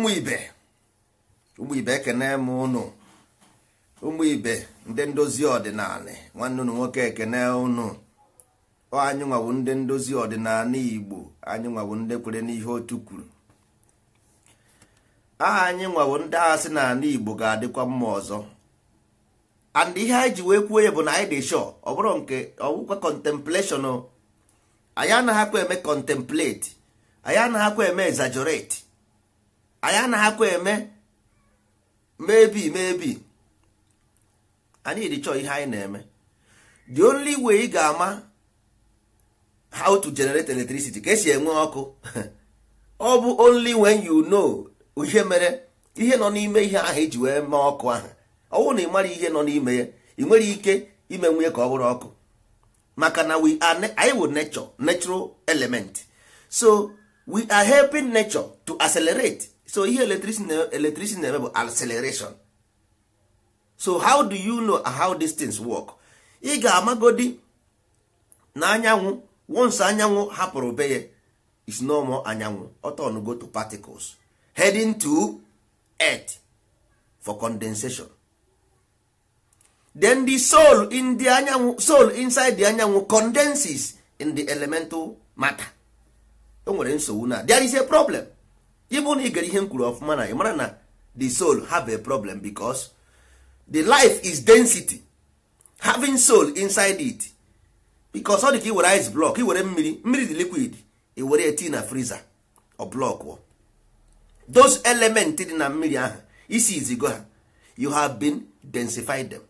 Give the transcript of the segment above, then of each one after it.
ụmụ ibe ụmụ ibe ekene m ụnụ ụmụ ibe ndị ndozi ọdịnala nwanne ụnụ nwoke ekene ụnụ anyị nwawu ndị ndozi ọdịnala igbo anyị nwawu ndị kwere n'ihe otu kwuru aha anyị nwawo ndị agha sị na ala igbo ga-adịkwa mma ọzọ and ihe anyị ji wee kwuo ya bụ na anyị dị sure ọ bụrụ nke ọwụkwa contemplation anyị anaghịkwa eme contemplate anyị anaghịkwa eme exaggerate anyị akwa eme mebi mebi anyị dị ihe anyị na-eme the only way ị ga-ama how to generate electricity ka esi enwe ọkụ ọ bụ only when you know ihe mere ihe nọ n'ime ihe ahụ iji e wee mee ọkụ ahụ ọ bụrụ na ị mara ihe nọ n'ime ya ị nwere ike ime nwunye ka ọ bụrụ ọkụ maka na we are anyị wụ nature natural element so we are helping nature to accelerate so ihe electricity na-eme bụ acceleration so how do you know how these things work ị ga-amagodi na anyanwụ once anyanwụ hapụrụ be ya is normal anyanwụ ọtọn go to particles heading to earth for condensation then the soul in the anyanwụ soul inside the anyanwụ condenses in the elemental matter o e nwere nsogbu na there is a problem even na ị gara ihe m kwuru ọfụma na ị na the soul have a problem because the life is density having soul inside it because ọ dị ka ị were ice block ị were mmiri mmiri dị liquid ị were eti na friza ọ blọkụ those element dị na mmiri ahụ isi izigo ha you have been densified them.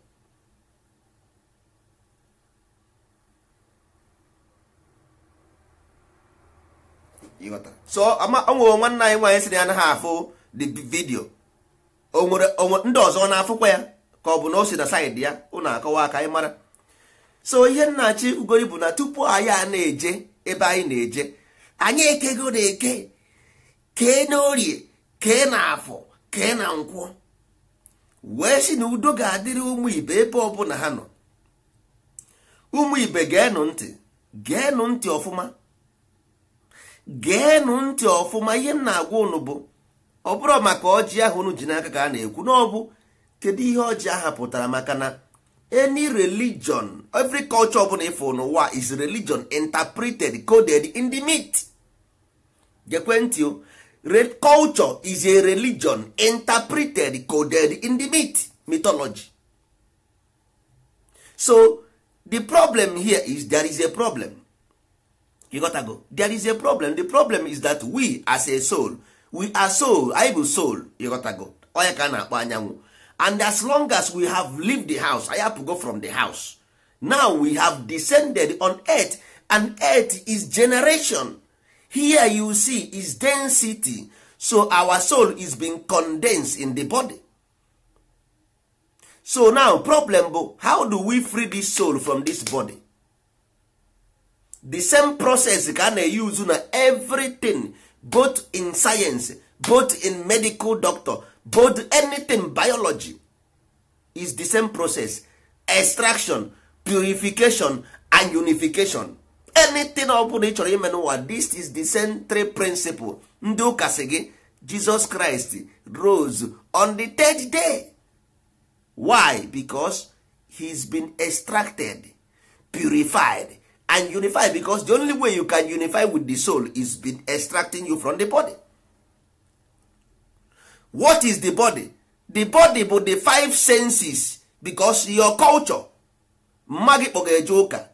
so onwere nwanne anyị nwaanyị si na ya anaghị afụ the vidio onwere ndị ọzọ na-afụkwa ya ka ọ bụ na o si na saịdị ya ụnụ akọwa aka anyị mara so ihe nnachi ugori bụ na tupu anyị a na-eje ebe anyị na-eje anyị ekego na-eke kee na orie kee na afọ kee na nkwọ wee si na udo ga-adịrị ụmụ ibe ebe ọbụla ha nọ ụmụ ibe geenụ ntị geenụ ntị ọfụma geenụ ntị ọfụma ihe m na-agwa ụnụ bụ ọ maka ọjị ahụ unu ji n'aka ka a na-ekwu n'ọbụ kedụ kedu ihe ọjị ahụ pụtara maka na eny religion every culture ọbụla ịfụ n'ụwa is religion interpreted coded in the myth gekwentị o red culture is a religion interpreted coded in the myth mythology so the problem here is there is a problem ịghọtago there is a problem the problem is that we as a soul we are soul i bụ soul ịghọtago onye ka a na-akpọ anyanwụ and as long as we have lived the house anyị apụgo from the house now we have descended on earth and earth is generation here you see is density so our soul is being condensed in the body so now problem bụ how do we free this soul from this body the same process ka a na na everything both in science both in medical doctor both anything biology is the same process extraction purification and unification anything ọ bụla ị chọrọ ime this is the central principle ndị ụka sị gị jesus christ rose on the third day why? because he's been extracted purified and unify because the only way you can unify with the soul is been extracting you from the body what is the body the body bụ the five senses because your culture mma gị kpọga eje ụka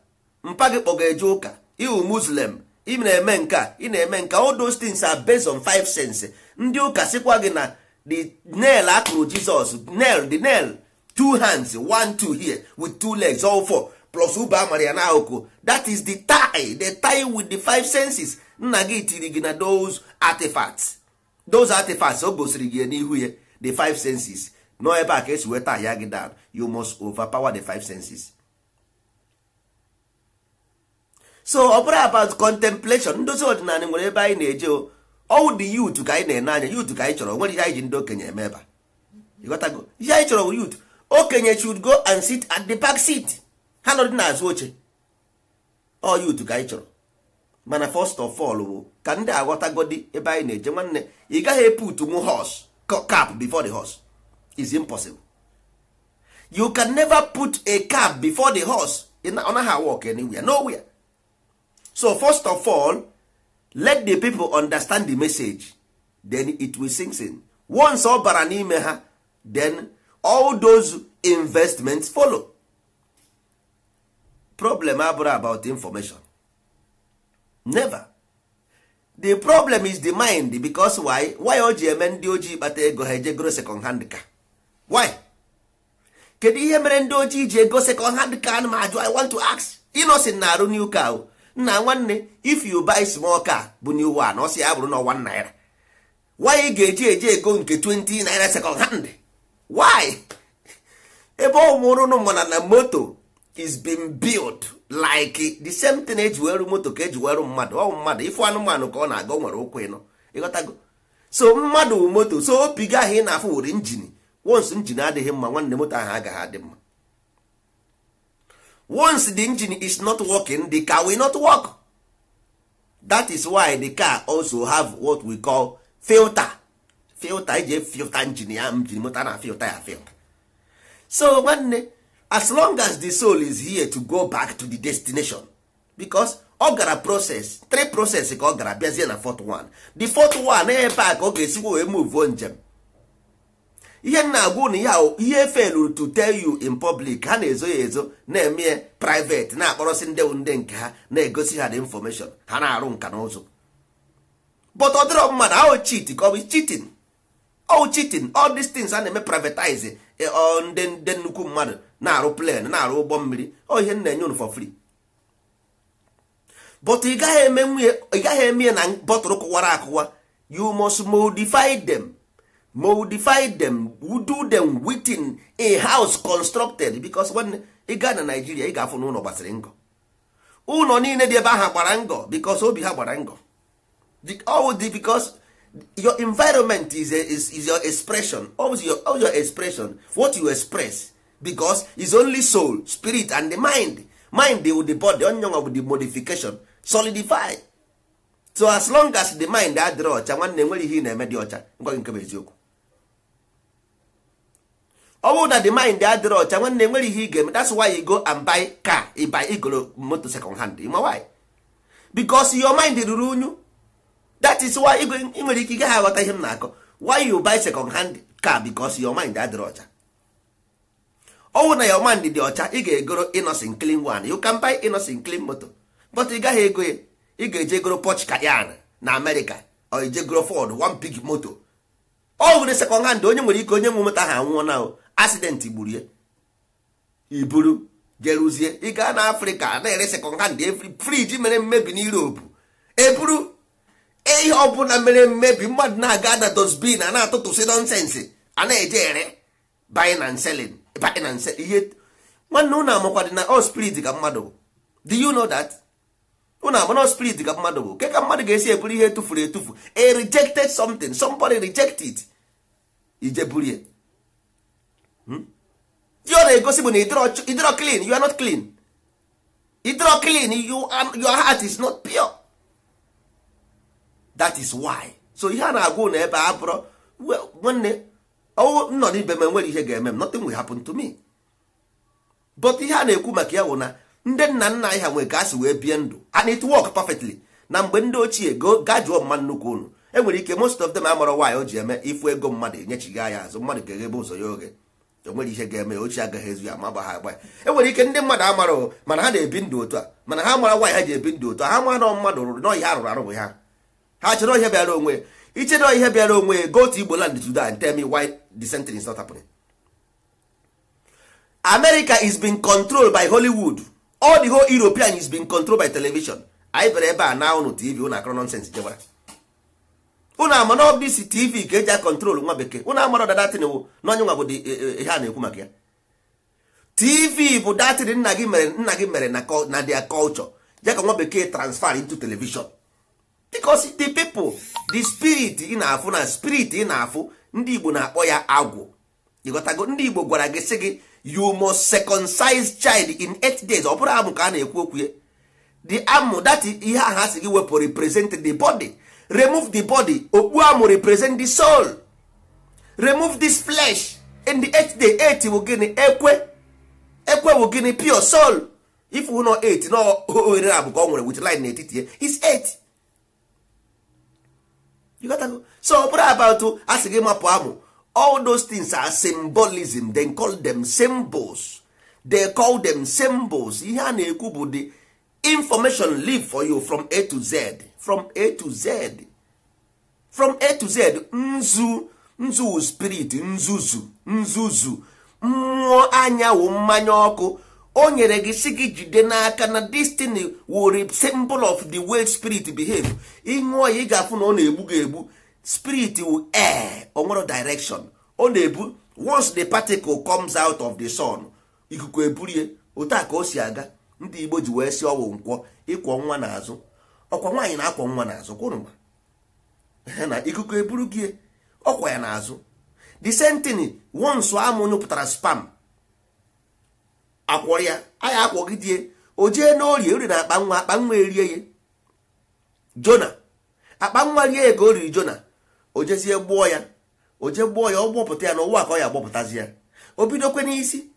mpa gị kpọga eje ụka iwu muslim ị na-eme nke ị na-eme nke all those things are based on five senses ndị ụka sịkwa gị na the nail akụrụ jizọs nail the nail two hands one two here with two legs all four plus ube amara ya n'akụkụ that is the tie the tie with the five senses nna gị tiri gị na those artifacts those artifacts o gosiri gị n'ihu ya the five senses nọ ebe a ka esi weta ya gị down you must overpower the five senses so ọ bụrụ about contemplation ndozi ọdịnala nwere ebe anyị na-eje ọwụ dị youth ka anyị na-ene anya youth ka anyị chọrọ nwere ihe anyị ji ndị okenye eme ebe ihe anyị chọrọ bụ youth okenye should go and sit at the back seat. ha nọdị n'azụ oche ọ yutu ka anyị chọrọ mana first of all bụ ka ndị aghọtagodi ebe anyị na-eje nwanne ị gaghị eput nwu hos cap before the horse is impossible you can never put a cap before the horse ọ naghị awok anywhere nowhere so first of all let the people understand the message then it will sink in once ọ bara n'ime ha then all those investments follow problem abụrụ about information never the problem is the mind because why why o ji eme ndị ojii kpata ego ha eje goro second hand car? why kedu ihe mere ndị ojii ji ego second hand car ana m ajụ i want to ask inosin na arụ new car nna nwanne if you buy small car bụ new one ọsị ya bụrụ na ọwa naira why ị ga-eji eji ego nke 20 naira second hand why ebe ọ mụrụ ụnụ mana na moto is being built like the same thing eji weru moto ka eji weru mmadụ ọ mmadụ ifu anụmanụ ka ọ na-aga nwere ụkwụ ịnọ ịghọtago so mmadụ moto so opi gị ahụ ị na-afụ were wons adịghị mma nwanne moto ahụ agaghị adị mma once the engine is not working the car will not work that is why the car also have what we call filter filter eji e filta njin ya njin moto a na-afilta ya filta so nwanne as long as the soul is here to go back to the destination because ọ gara process three process ka ọ gara bịazie na fourth one the fourth one ebe a ka ọ ga-esikwa wee move njem ihe na-agwụ na ya ihe felụ to tell you in public ha na-ezo ya ezo na-eme ya private na-akpọrọsị ndị ndị nke ha na-egosi ha the information ha na-arụ nka na ụzụ but ọ dịrọ mmadụ ahụ chit ka ọ bụ chitin all cheating all these things a na-eme privatize eh, ndị nnukwu mmadụ na-arụ plen na-arụ ụgbọ mmiri ọ ihe nna enye unu for free but ị gaghị eme ya na bọtụlụ kụwara akụwa you must modify them modify them do them within a house constructed because when ị gaa na Nigeria ị ga-afụ n'ụlọ gbasiri ngọ ụlọ niile dị ebe ahụ gbara ngọ because obi ha gbara ngọ all because your environment is, a, is, is your expression always your, always your expression what you express because is only soul spirit and the mind mind with the body onion of the modification solidify so as long as the mind adịrị ọcha nwanne nwere ihe na-eme dị ọcha ngwa gị nke bụ eziokwu ọ bụrụ na the mind adịrị ọcha nwanne nwere ihe ị ga-eme that's why you go and buy car ị buy igoro moto second hand ma why because your mind ruru unyu that is why ị nwere ike ị gaghị aghọta ihe m na-akọ why you buy second hand car because your mind adịrị ọcha ọnwụ na your mind dị ọcha ị ga-egoro inosin clean one you can buy innocent clean moto but ị gaghị ego ya ị ga-eje goro Porsche yan na America or goro Ford one big moto ọ nwere second hand onye nwere ike onye nwe moto ahụ anwụọ na accident gburu iburu jeruzie ị gaa na Afrịka na-ere second hand friji mere mmebi na Europe eburu e ihe ọbụla mere mmebi mmadụ na-aga na dosbin a na atụtụsi nọnsensị a na-eje ere buy and paaki na nse ihe nwanne ụnụ amakwadị na all spirit ka mmadụ bụ do you know that ụnụ ama na ka mmadụ bụ ke ka mmadụ ga-esi eburu ihe tụfuru etufu e rejected something somebody rejected ije burie hmm? ọ na-egosi bụ na ịdịrọ clean you are not clean idro clean your heart is not pure that is why so ihe a na-agwa ụnụ ebe a bụrụ nwanne Oh, nọ n'ibe m enwere ihe ga-eme m nothing will happen to me but ihe a na-ekwu maka ya wụ na ndị nna nna anyị ha nwere ka wee bie ndụ and it work perfectly na mgbe ndị ochie ga jụọ mma nnukwu unu enwere ike most of them amara nwaanyị o ji eme ifu ego mmadụ gị ya azụ mmadụ ga-eghebe ụzọ ya oge enwere ihe ga-eme ochie agaghị ezu ya ma gbagha agba ya enwere ike ndị mmadụ amara mana ha na-ebi ndụ otu a mana ha mara nwaanyị ha ji ebi ndụ otu a ha mara na mmadụ rụrụ nọọ ihe arụrụ arụ bụ ha ha chọrọ ihe bịara onwe ichedo ihe bịara onwe ya go to Igbo land today and tell me why the sentence is not happening. America is being controlled by Hollywood. All the whole European is being controlled by television. anyị bịara ebe a na ụnụ TV ụnụ akọrọ nọnsens jebara ụnụ ama na ọbụ isi TV ka eji a kọntrol nwa bekee ụnụ amara ọdada tin wụ na onye nwa bụ e, e, e, ihe a na-ekwu maka ya TV bụ datịrị nna gị mere nna gị mere na their culture ya ka nwa bekee transfer into television because the people the spirit ị na-afụ na spirit ị na-afụ ndị igbo na-akpọ ya agwụ ịghọtago ndị igbo gwara gị sị gị you must circumcise child in eight days ọ bụrụ amụ ka a na-ekwu okwu ya the amụ that ihe ahụ a sị gị wepụ represent the body remove the body okpu amụ represent the soul remove this flesh in the eight day eight wụ gịnị ekwe ekwe wụ gịnị pure soul if wụ nọ eight na ohere abụka ọ nwere wit line n'etiti ya is eight you got to so ọ bụrụ about asị gị mapụ amụ all those things are symbolism they call them symbols they call them symbols ihe a na-ekwu bụ the information live for you from a to z from a to z from a to z nzu nzu spirit nzuzu nzuzu mmụọ anyanwụ mmanya ọkụ o nyere gị si gị jide n'aka na destiny were symbol of the way spirit behave ṅụọ ya ị ga-afụ na ọ na-egbu gị egbu spirit wu air onwere direction ọ na-ebu once the particle comes out of the sun ikuku eburie otu a ka o si aga ndị igbo ji wee si ọwụ nkwọ ịkwọ nwa n'azụ ọkwa nwaanyị na-akwọ nwa n'azụ kwụrụma na ikuku eburu gị ọkwa ya n'azụ the same thing once amụnyụpụtara spam akwọrọ ya anyị akwọgidie o jee n'orie ori na akpanwa akpanwa erie ya jona akpa nwa rie ya ka o riri jona o jezie gbuo ya o jee gbuo ya ọ gbọpụta ya n'ụwa ka ọ ya agbọpụtazi ya o bidokwe n'isi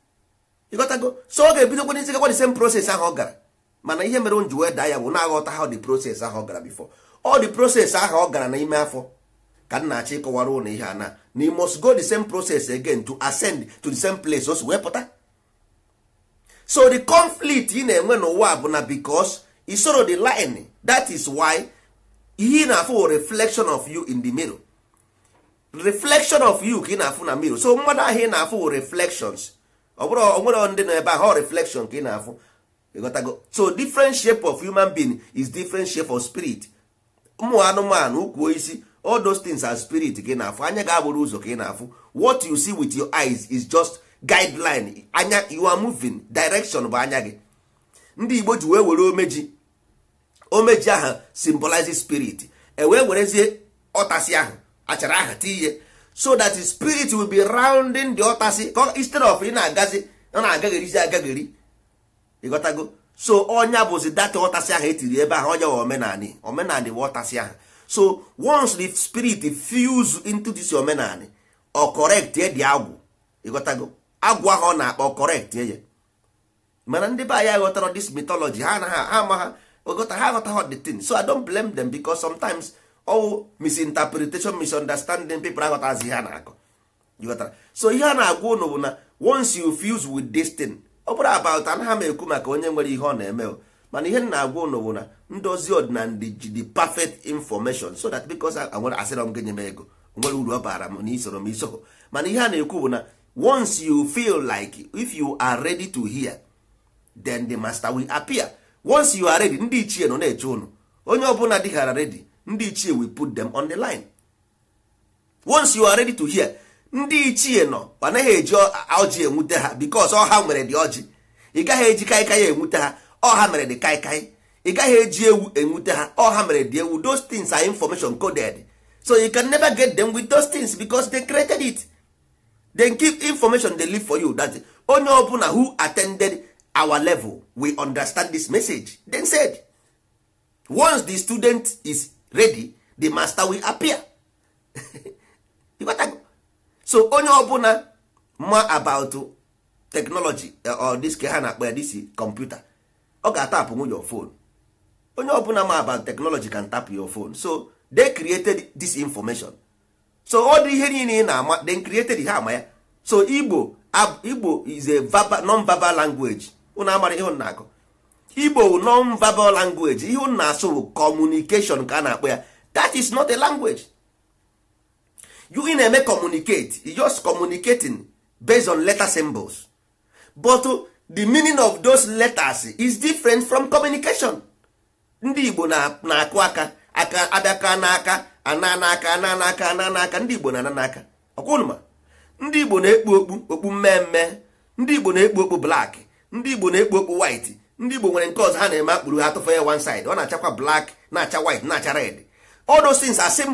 ịghọtago so ọ ga-ebidokwe n'isi gakwa the same process ahụ ọ gara mana ihe mere nji wee daa ya bụ na-aghọta ha dị proses ahụ ọ gara bifo ọ dị proses ahụ ọ gara n'ime afọ ka m na-achọ ịkọwara ụlọ ihe a na na must go the same process again to ascend to the same place o si wee pụta so the conflict ị na-enwe n'ụwa bụ na because soro the line that is why he na-afụ reflection of you in the mirror reflection of you ka ị na-afụ na mirror so mmadụ ahụ ị na-afụ reflections ọ bụrụ onwere ndị nọ ebe ahụ reflection ka ị na-afụ so different shape of human being is different shape of spirit ụmụ anụmanụ ukwu isi all those things are spirit ka ị na-afụ anya ga-abụrụ ụzọ ka ị na-afụ what you see with your eyes is just guideline anya you are moving direction bụ anya gị ndị igbo ji wee were omeji omeji ahụ symbolize spirit e wee werezie ọtasi ahụ achara ahụ tiiye so that the spirit will be rounding the ọtasi instead of ị na-agazi ọ na-agagherizi agagheri ịghọtago so ọnya bụzi data ọtasị ahụ etiri ebe ahụ ọnya omenani omenani wa ọtasi ahụ so once the spirit fuse into this omenani ọ correct e dị agwụ ịghọtago agwa ha ọ na-akpọ correct ye mana ndị be anyị ghọtara this mythology ha anaghị ama ha ogota ha aghọtaghị the thing so i don't blame them because sometimes all misinterpretation misunderstanding people aghọtazi ihe a na-akọ so ihe a na-agwa ụnụ bụ na once you fuse with this thing ọ bụrụ about anaghị m ekwu maka onye nwere ihe ọ na-eme o mana ihe na-agwa ụnụ bụ na ndozi ọdịnala ji the perfect information so that because asịrọ m gị nye m ego nwere uru ọ bara m na isoro m iso mana ihe a na-ekwu bụ na once you feel like if you are ready to hear then the master will appear once you are ready ndị ichie nọ na-eche ụnụ onye ọbụla dịghara ready ndị ichie will put them on the line once you are ready to hear ndị ichie nọ anaghị eji ọjị enwute ha because ọha nwere dị ọjị ị gaghị eji kaikai enwute ha ọha mere dị kaikai ị gaghị eji ewu enwute ha ọha mere dị ewu those things are information coded so you can never get them with those things because they created it then keep information they leave for you that onye ọbụla who attended our level we understand this message then said once the student is ready the master will appear so onye ọbụla ma about technology eh, or this ke ha na-akpọ ya this computer ọ ga-atapụ nwunye your phone onye ọbụla ma about technology can tap your phone so they created this information so ọ dị ihe niile ị na-ama then created ha ama ya so igbo igbo is a non-verbal language unu amara ihe na-akọ igbo non-verbal language ihe unu na-asụ bụ communication ka a na-akpọ ya that is not a language you ị na-eme communicate you just communicating based on letter symbols but uh, the meaning of those letters is different from communication ndị igbo na-akụ aka aka abịaka n'aka ana n'aka ana ndị igbo na ananaka n'aka ọkwụnụma ndị igbo na-ekpu okpu okpu mmemme ndị igbo na-ekpu okpu blak ndị igbo na-ekpu okpu white ndị igbo nwere nke ọzọ ha na-eme akpụrụ ha tụfa ya one side ọ na-achakwa blak na-acha wit na-acha red all those things are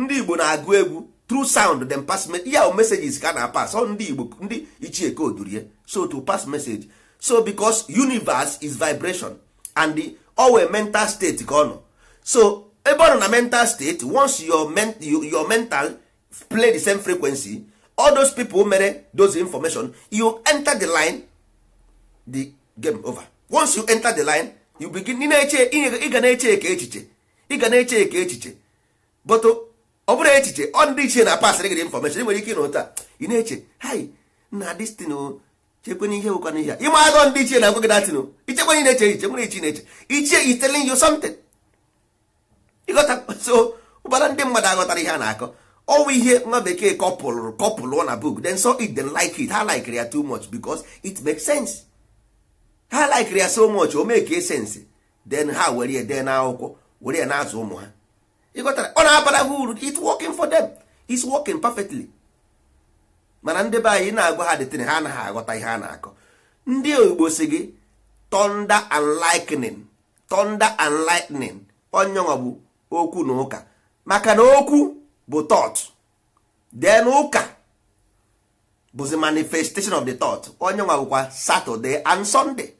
ndị igbo na-agụ egwu through sound then pass ya o messages ka na pas ọ ndị igbo ndị ichie ka odurie so to pass message so because universe is vibration and the owe mental state ka ọ nọ so ebe ọ na mental state once your, mental play the same frequency all those people mere those information you enter the line the game over once you enter the line you begin eche ịga na-eche eke echiche ịga na-eche eke echiche but ọ bụrụ echiche ọ ndị ichie na pasịrị gị information ị nwere ike ịnụ taa ị na-eche hai na destin chekwana ihe wụkwana ihe a ịma ndị ichie na-agwa gị datin ichekwana ị na-eche echiche nwere ichi na-eche ichie is telling you something ịghọta so ụbara ndị mmadụ aghọtara ihe a na-akọ ọnwụ ihe nwa bekee kọpụlụrụ kọpụlụọ na book then so it then like it ha likere ya too much because it makes sense ha likere ya so much o mee ka sense then ha were ya dee n'akwụkwọ were ya na-azụ ụmụ ha ịghọtara ọ na-abara ha uru it's working for them it's working perfectly mana ndị be anyị na-agwa ha detin ha anaghị aghọta ihe a na-akọ ndị oyibo si gị thunder and lightning thunder and lightning onye bụ okwu na ụka maka na okwu bụ thought then ụka bụzi manifestation of the thought onye nwa bụkwa Saturday and Sunday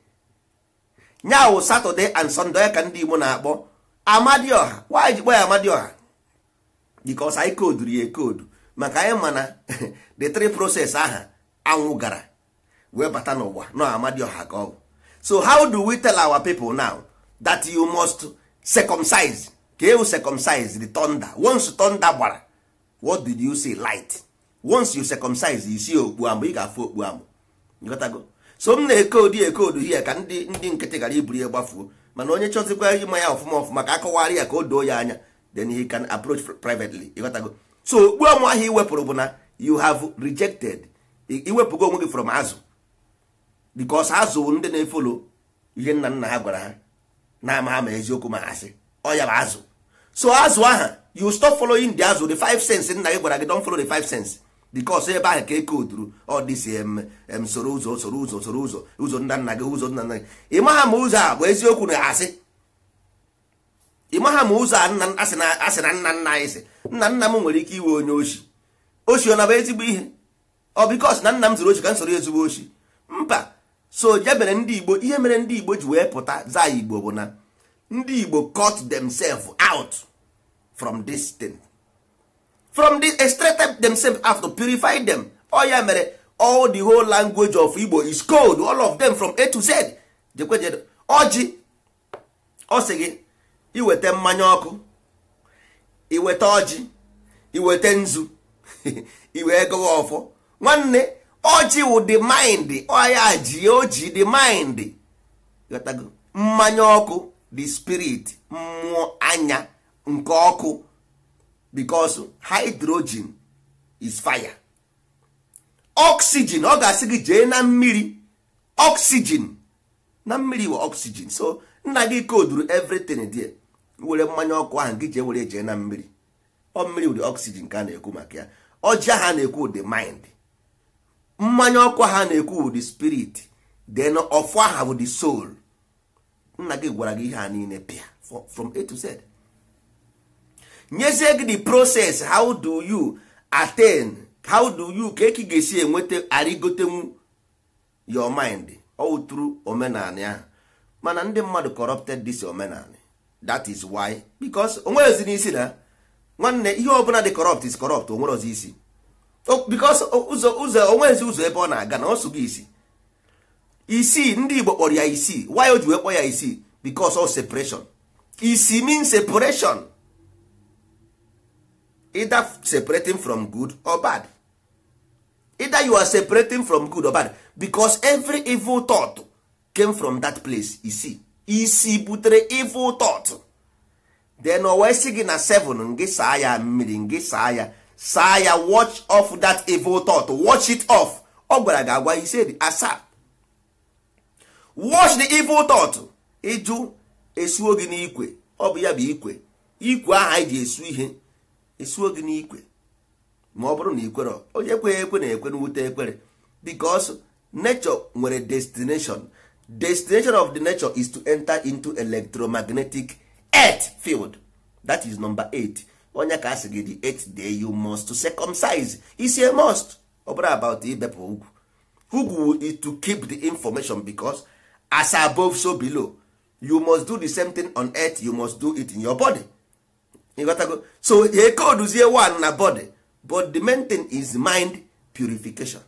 nyawụ Saturday and Sunday onye ka ndị Igbo na-akpọ Amadioha wanyị ji kpọ ya Amadioha because anyị koduru ya ekodu maka anyị mana the three process aha anwụ gara wee bata n'ụwa na Amadioha ka ọ so how do we tell our people now that you must circumcise ka ewu circumcise the thunder once thunder gbara what did you see light once you circumcise you okpu amụ ị ga-afụ okpu amụ so m na-ekodu ekodu hie ka ndị ndị nkịtị gara iburu ya gbafuo mana onye chọzikwa ịma ya ọfụma ọfụma ka akọwarị ya ka o doo ya anya then he can approach privately ịghọtago so okpu amụ ahụ ị wepụrụ bụ na you have rejected iwepụgo onwe gị from azụ because azụ ndị na-efolo ihe nna nna ha gwara ha na ama ama ma eziokwu ma ha sị ọ ya bụ azụ so azụ aha you stop following the azụ the five sense nna gị gwara gị don follow the five sense because ebe ahụ ka eke ụzọ ụzọ ụzọ ụzọ nna nna ụzọ nna nna gị ụzọ a bụ eziokwu na asị ụzọ asị na nna nna ike iwe onye ezigbo ọ bikos na m zụrụ m ezigbo mba so ihe mere ndị igbo ji wee pụta za igbo bụ na ndị igbo cut themselves out from this thing from this extracted themselves out to purify them all oh, ya mere all the whole language of Igbo is cold. all of them from A to Z jekweje ọjị oh, ọ oh, sị gị iweta mmanya ọkụ iweta ọjị iweta nzu iwee gọwa ọfọ nwanne ọjị wụ the mind ọya ji oji the mind mmanya ọkụ the spirit mmụọ anya nke ọkụ because hydrogen is fire oxygen ọ ga-asị gị jee na mmiri oxygen na mmiri wụ oxygen so nna gị koduru everything there were mmanya ọkụ ahụ gị jee were jee na mmiri ọ mmiri ụdị oxygen ka a na-ekwu maka ya ọjị ha na-ekwu ụdị mind mmanya ọkụ ha na-ekwu ụdị spirit then ọfụ aha bụ the soul nna gị gwara gị ihe ha niile pịa from A to Z nyezie gị the process how do you attain how do you ka eki ga-esi enweta arigotenwu your mind outru omenala ya mana ndị mmadụ corrupted this omenala that is why because onwerozi n'isi na nwanne ihe ọ bụla dị corrupt is corrupt onwerozi isi because ụzọ ụzọ onwezi ụzọ ebe ọ na-aga na ọsụ gị isi isii ndị Igbo kpọrọ ya isii why o ji wee kpọ ya isii because of separation isi mean separation either separating from good or bad either you are separating from good or bad because every evil thought came from that place isi isi butere evil thought then o wee sị gị na 7 ngị saa ya mmiri ngị saa ya saa ya watch off that evil thought watch it off ọ gwara gị agwa ise asaa watch the evil thought ịjụ esuo gị n'ikwe ọ bụ ya bụ ikwe ikwe aha anyị ji esu ihe esuo gị n'ikwe ma ọ bụrụ na ikwere onye ekwe ekwe na-ekwe n'wute ekpere because nature nwere destination destination of the nature is to enter into electromagnetic earth field that is number 8 onye ka asị gị di earth day you must to circumcise isi a must ọ bụrụ about ibepụ ugwu ugwu is to keep the information because as above so below you must do the same thing on earth you must do it in your body ịghọtago so e koduzie one na bodi but the main thing is mind purification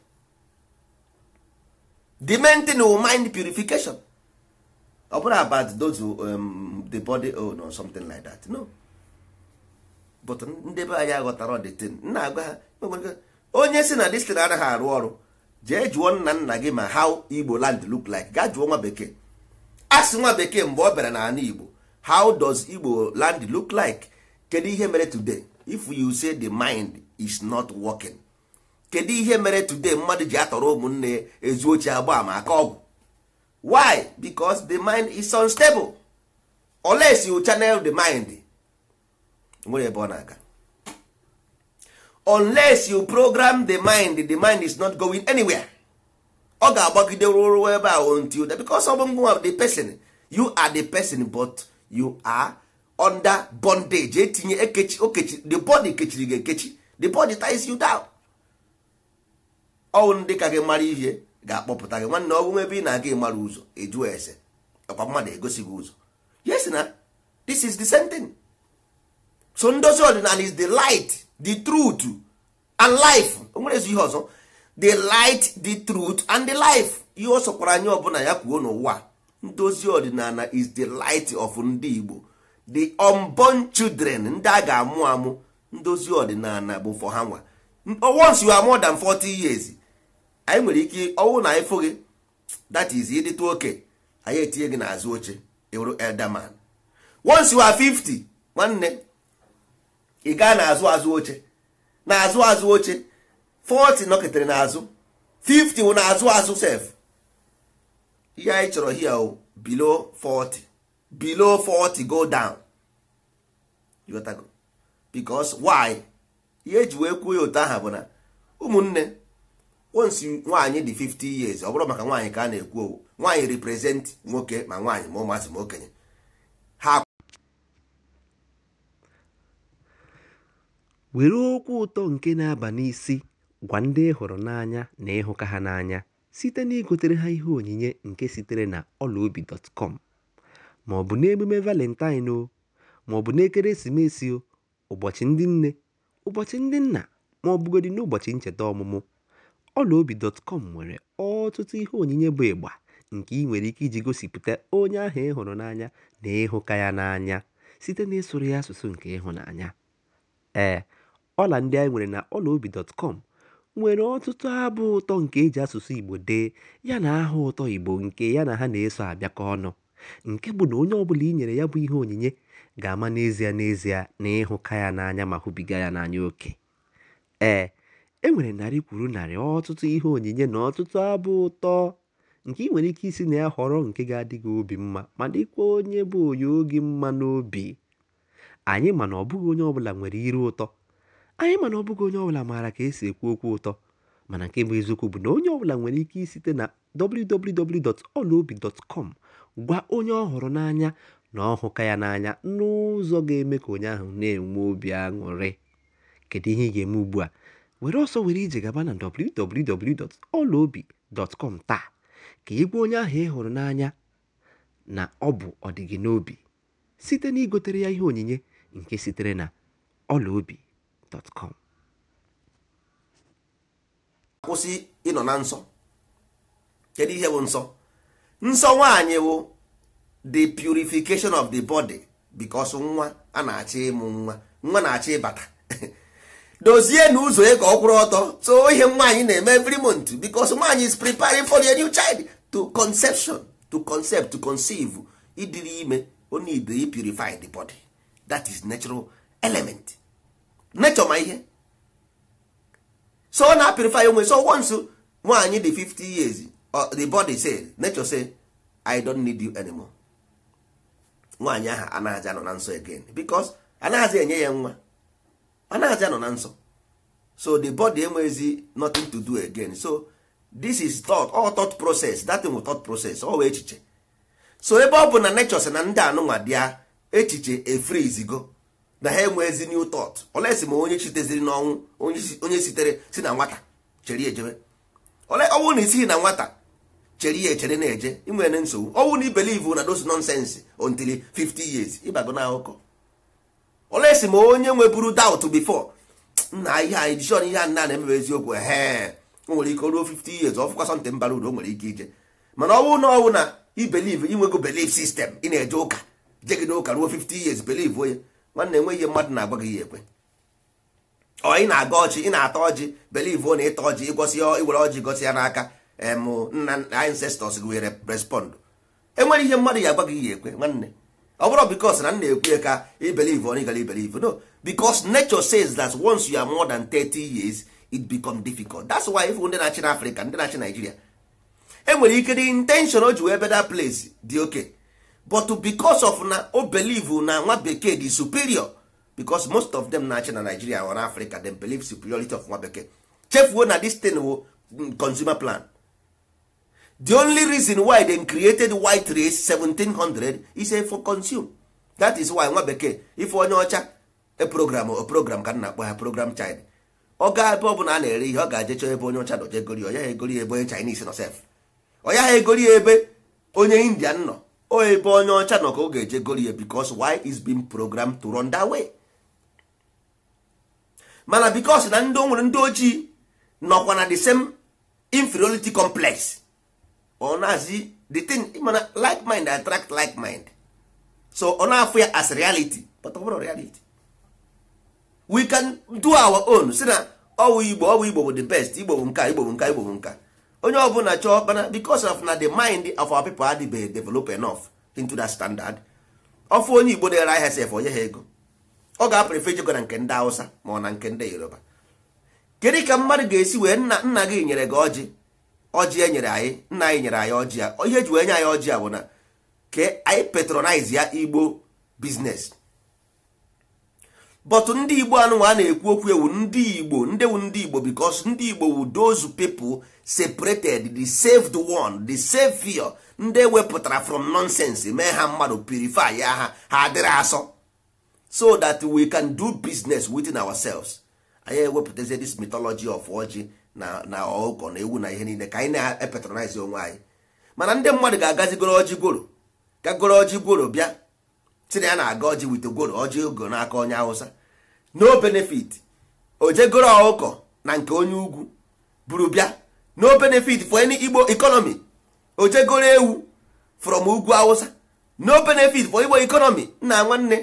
the main thing is mind purification ọ bụrụ about those um, the body own oh, or something like that no but ndị be anyị aghọtara the thing nna agwa ha e onye si na destin anaghị arụ ọrụ jee jụọ nna nna gị ma how igbo land look like gaa jụọ nwa bekee asị nwa bekee mgbe ọ bịara n'ala igbo how does igbo land look like kedu ihe mere today if you say the mind is not working kedu ihe mere today mmadụ ji atọrọ ụmụnne ezu oche agba ama aka ọgwụ why because the mind is unstable unless you channel the mind nwere ebe ọ na-aga unless you program the mind the mind is not going anywhere ọ ga-agbagide ruo ebe ahụ until because ọ bụ ngwa the person you are the person but you are under bondage etinye ekechi okechi the body kechiri gị ekechi the body ties you down ọnwụ ndị ka gị mara ihe ga-akpọpụta gị nwanne ọgwụ ebe ị na-aga ịmara ụzọ ejuo ese ọkwa mmadụ egosi gị ụzọ yes na this is the same thing so ndozi ọdịnala is the light the truth and life o nwere ezi ihe ọzọ the light the truth and the life ihe ọ sọkwara anyị ọbụla ya kwuo n'ụwa ndozi ọdịnala is the light of ndị Igbo the unborn children ndị a ga-amụ amụ ndozi ọdịnala bụ for ha nwa oh, once you are more than 40 years anyị nwere ike ọnwụ na ịfụ gị that is ịdịtụ oke anyị etinye gị n'azụ oche ịwụrụ elderman once you are 50 nwanne ị gaa n'azụ azụ oche n'azụ azụ oche 40 nọketere n'azụ 50 wụ n'azụ azụ sef ihe anyị chọrọ hia o below 40 below 40 go down because why ihe eji wee kwuo ya otu aha bụ na ụmụnne once nwaanyị dị 50 years ọ bụrụ maka nwaanyị ka a na-ekwu owu nwaanyị represent nwoke ma nwaanyị ma ụmụazị ma okenye ha were okwu ụtọ nke na-aba n'isi gwa ndị ị hụrụ n'anya na ịhụka ha n'anya site na ha ihe onyinye nke sitere na ọlaobi.com bụ n'emume Valentine o, bụ n'ekeresimesi o, ụbọchị ndị nne, ụbọchị ndị nna ma ọ bụgodị n'ụbọchị ncheta ọmụmụ, ọlaobi.com nwere ọtụtụ ihe onyinye bụ ịgba nke ị nwere ike iji gosipụta onye ahụ ị hụrụ n'anya na ịhụka ya n'anya site ịsụrụ ya asụsụ nke ịhụnanya. Ee, ọla ndị anyị nwere na ọlaobi.com nwere ọtụtụ abụ ụtọ nke eji asụsụ Igbo dee yana aha ụtọ Igbo nke ya na ha na-eso abịakọ ọnụ. nke bụ na onye ọbụla i nyere ya bụ ihe onyinye ga-ama n'ezie n'ezie na ịhụka ya n'anya ma hụbiga ya n'anya oke ee e nwere narị kwuru narị ọtụtụ ihe onyinye na ọtụtụ abụ ụtọ nke ị nwere ike isi na ya họrọ nke ga adịghị obi mma ma dịkwa onye bụ onye oge mma n'obi anyị mana ọ bụghị onye ọbụla nwere iru ụtọ anyị mana ọ bụghị onye ọbụla maara ka esi ekwu okwu ụtọ mana nke bụ eziokwu bụ na onye ọbụla nwere ike isite na www.olaobi.com gwa onye ọ hụrụ n'anya na ọ hụka ya n'anya n'ụzọ ga-eme ka onye ahụ na-enwe obi aṅụrị kedu ihe ị ga-eme ugbu a were ọsọ were ije gaba na www.ọlaobi.com taa ka ị gwa onye ahụ ị hụrụ n'anya na ọ bụ ọdịgị n'obi site na igotere ya ihe onyinye nke sitere na ọlaobi.com kwụsị ịnọ na nsọ kedu ihe bụ nsọ nsọ nwaanyị wụ the purification of the body because nwa a na-achọ ịmụ nwa nwa na-achọ ịbata dozie na ụzọ ka ọ kwụrụ ọtọ so ihe nwaanyị na-eme every month because nwaanyị is preparing for a new child to conception to concept to conceive idiri ime Only ibe purify the body that is natural element nature ma ihe so ọ na-apurify onwe so once nwaanyị di 50 years Uh, the body say nature say i don't need you anymore nwaanyị ahụ anaghịzi anọ na nsọ again because anaghazi enye ya nwa anaghazi anọ na nsọ so the body enweghịzi nothing to do again so this is thought all thought process that thing thought process all echiche so ebe ọ bụ na nature sị na ndị anụnwa dịa echiche efrizigo na ha enweghịzi new thought olesi ma onye chiteziri n'ọnwụ onye sitere si na nwata chere ejebe ọ bụrụ na isighị na nwata chere ya echere na-eje inwere nsogbu ọnwụ na ibelivu na dos nonsense until 50 years ịbago na akụkọ olesi ma onye nweburu doubt before nna ihe anyị jishọn ihe nna na-emebe eziokwu ehe o nwere ike ruo 50 years ọfụkwa something mbara uru o nwere ike ije mana ọnwụ na ọnwụ na ibelive inwego belief system ị na-eje ụka jegide ụka ruo 50 years belive onye nwanne enwe ihe mmadụ na-agwa gị ya ekwe ọ ị na-aga ọchị ị na-ata ọjị ọ na ịta ọjị ịgọsi iwere ọjị gosi ya n'aka nna ancestors gị were respond enwere ihe mmadụ ya agwaghị ya ekwe nwanne ọ bụrụ bikos na nna ekwe ka ibelive or gara ibelive no bicos nature says that once you are more than 30 years it become difficult that's why if ndị na-achị na afrịka ndị na-achị Nigeria, enwere ike dị intention o ji wee beda place dị oke but bicos of na o believe na nwa bekee dị superior bicos most of them na-achị na nigeria or africa them believe superiority of nwa bekee chefuo na this thing mm, consumer plan the only reason why they created white race 1700 is for consume that is why nwa bekee ife onye ọcha program o program ka na-akpọ ha program china ọ ga ebe ọ bụla a na-ere ihe ọ ga-aje chọọ ebe onye ọcha nọ jegori onye ha egori ebe onye chinese nọ sef onye ha egori ebe onye indian nọ o ebe onye ọcha nọ ka ọ ga-eje gori ya because is being programmed to run that way mana because na ndị o nwere ndị ojii nọkwa na the same inferiority complex ọ na-asị the thing mana like mind attract like mind so ọ na-afụ ya as reality but ọ bụrụ reality we can do our own si na ọwụ igbo ọwụ igbo bụ the best igbo bụ nka igbo bụ nka igbo bụ nka onye ọbụla chọọ mana because of na the mind of our people adịbeghị develop enough into that standard ọfụ onye igbo dere ahịa sef onye ha ego ọ ga-apụrụ ijego na nke ndị hausa ma ọ na nke ndị yoruba kedu ka mmadụ ga-esi wee nna nna gị nyere gị ọjị ọjị e nyere anyị nna anyị nyere anyị ọjị a ihe eji wee nye anyị ọjị bụ na ke anyị patronize ya igbo biznes but ndị igbo anụnwa a na-ekwu okwu ewu ndị igbo ndị wu ndị igbo because ndị igbo wu those people separated the saved one the savior ndị wepụtara from nonsense mee ha mmadụ purify ya ha ha adịrị asọ so that we can do business within ourselves anyị ewepụtazie this mythology of ojii. na na na ewu na ihe niile ka anyị na-epetronize onwe anyị mana ndị mmadụ ga-agazigoro ọjị gworo ka goro ọjị gworo bịa tinye ya na-aga ọjị wite gworo ọjị ogo n'aka onye hausa. no benefit ojegoro ọkụkọ na nke onye ugwu buru bịa no benefit for any igbo economy ojegoro ewu from ugwu hausa no benefit for igbo economy nna nwanne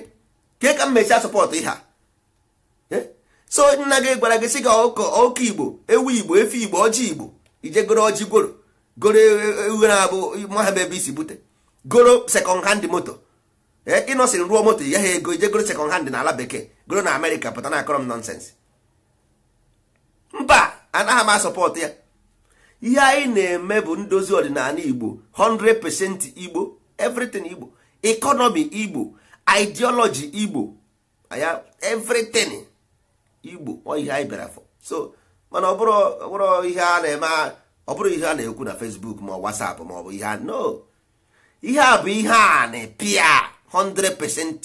ke ka m mesie sọpọtụ ihe a so nna gị gwara gị sị gị ọkụ igbo ewu igbo efe igbo ọjị igbo ije goro ọjị gworo goro uwe na-abụ mahaba ebe isi bute goro sekọnd hand moto e, ịnọsịrị ruo moto ya ha ego ije goro sekọnd hand na ala bekee goro na amerịka pụta na akọrọ m nọnsensị mba anaghị m asọpọtụ ya ihe anyị na-eme bụ ndozi ọdịnala igbo 100% igbo everything igbo economy igbo ideology igbo everything igbo ọ ihe anyị bịara afọ so mana ọ bụrụ ihe a na-eme ọ bụrụ ihe a na-ekwu na facebook ma whatsapp ma ọ bụ ihe a no ihe a bụ ihe a na-epia 100%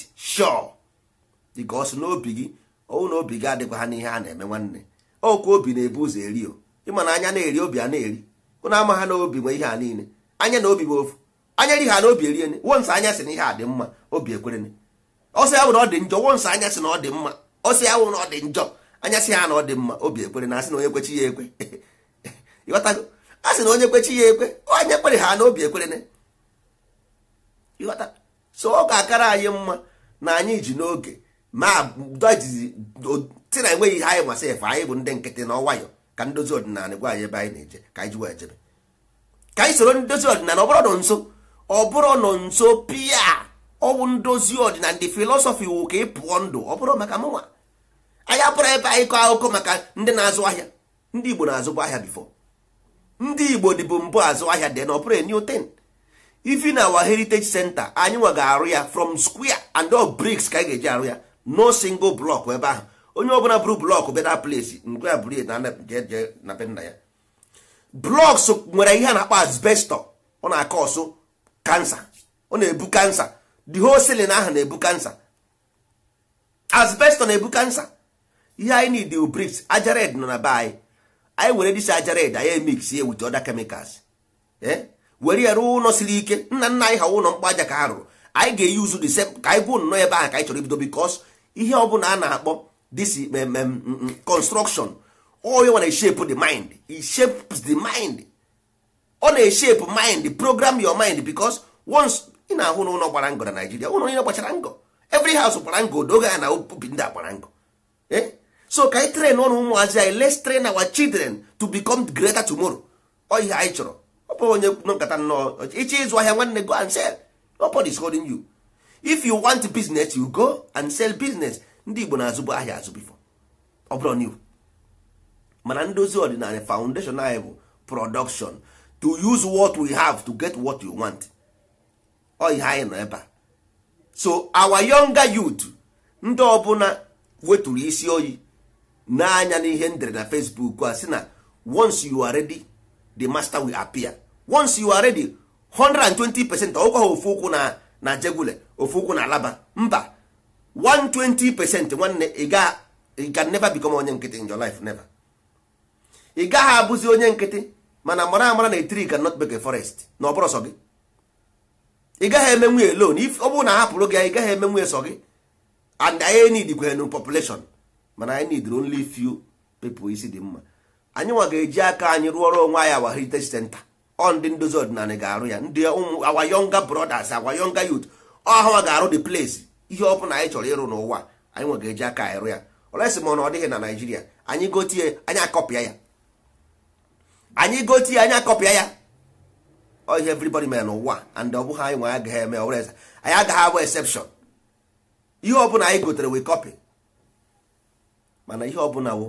ọ sị n'obi gị ọwụ na obi gị adịkwa ha n'ihe a na-eme nwanne okwu obi na-ebu ụzọ eri o ịma na anya na-eri obi a na-eri ụna ama ha n'obi nwe ihe a niile anya na obi bụ ofu anya ri ha na obi eriene wonsa anya sị na ihe a dị mma obi ekwerene ọsọ ya bụ na ọ dị njọ wonsa anya sị na ọ dị mma ọ sị ya wụ na ọ dị njọ anya sị ha na ọ dị mma obi ekwere na asị na onye kwechi ya ekwe ịghọtago a sị na onye kwechi ya ekwe onye kwere ha na obi ekwere na ịghọta so ọ ga-akara anyị mma na anyị ji n'oge ma dojizi si na enweghị ihe anyị masị efe anyị bụ ndị nkịtị na ọwayọ ka ndozi ọdịnala gwa anyị ebe anyị na-eje ka anyị ji wee jebe ka anyị soro ndozi ọdịnala ọ bụrụ nọ nso ọ bụrụ nọ nso pịa ọgwụ ndozi ọdịna ndị filọsọfị wụ ka ị pụọ ndụ ọ bụrụ maka mụnwa anyị abụrụ ebe anyị kọọ akụkọ maka ndị na-azụ ahịa ndị igbo na-azụkwa ahịa bifo ndị igbo dịbụ mbụ azụ ahịa dị na ọbụrụ new ten ifi na our heritage center anyị nwa ga-arụ ya from square and all bricks ka anyị ga-eji arụ ya no single block ebe ahụ onye ọbụla bụrụ blọk na place ngwe ya bụrụ na be nna ya blọks nwere ihe a na-akpọ asbestọ ọ na-akọ ọsụ kansa ọ na-ebu kansa the whole ceiling ahụ na-ebu kansa asbestos na-ebu kansa ihe anyị need the bricks ajared nọ na be anyị anyị were dis ajared anyị emix ya with other chemicals eh? were ya rụọ ụlọ siri ike nna nna anyị ha ụlọ mkpa aja ka ha rụrụ anyị ga eyi uzu the same ka anyị gwuo nnọọ ebe ahụ ka anyị chọrọ ibido because ihe ọ bụla a na-akpọ this mm, mm, mm, construction oye wana shape the mind it shapes the mind ọ na-eshape mind program your mind because once ị na-ahụ n'ụlọ gbara ngọ na naijiria ụlọ niile gbachara ngọ every house gbara ngọ odoge ya na obi ndị a gbara ngọ e? so ka anyị train ọrụ ụmụazị anyị let's train our children to become greater tomorrow ọ ihe anyị chọrọ ọ bụrụ onye nkata nnọọ iche ịzụ ahịa nwanne go and sell nobody is holding you if you want business you go and sell business ndị igbo na-azụbụ ahịa azụ bifo ọ bụrụ new mana ndozi ọdịnala foundation anyị bụ production to use what we have to get what you want ihe anyị nọ ebe a so our younger youth ndị ọbụla weturu isi oyi n'anya n'ihe ndere na Facebook a sị na once you are ready the master will appear once you are ready 120 percent ọgwa ha ofu ụkwụ na na jegule ofu ụkwụ na alaba mba 120 percent nwanne ị ga never become onye nkịtị in your life never ị gaghị abụzi onye nkịtị mana mara amara na etiri can not make a forest na ọ bụrụ gị ị gaghị eme nwunye lon ọ bụrụ na hapụrụ gị ị gaghị eme nwunye sọ gị and anyị need kwere population mana anyị need only few people isi dị mma anyị nwa ga-eji aka anyị rụọrọ onwe anyị awa heritage center ọ ndị ndozi ọdịnala ga-arụ ya ndị ụmụ awa yonga brothers awa yonga youth ọha ga-arụ the place ihe ọ bụla anyị chọrọ ịrụ n'ụwa anyị nwa ga-eji aka anyị rụ ya olesi ma na ọ dịghị na naijiria anyị gotie anyị akọpịa ya anyị gotie anyị akọpịa ya ọ ihe everybody mere n'ụwa and ọ bụghị anyị nwe agaghị eme ọ eze anyị agaghị abụ exception ihe ọbụla anyị gotere we copy mana ihe ọbụla wụ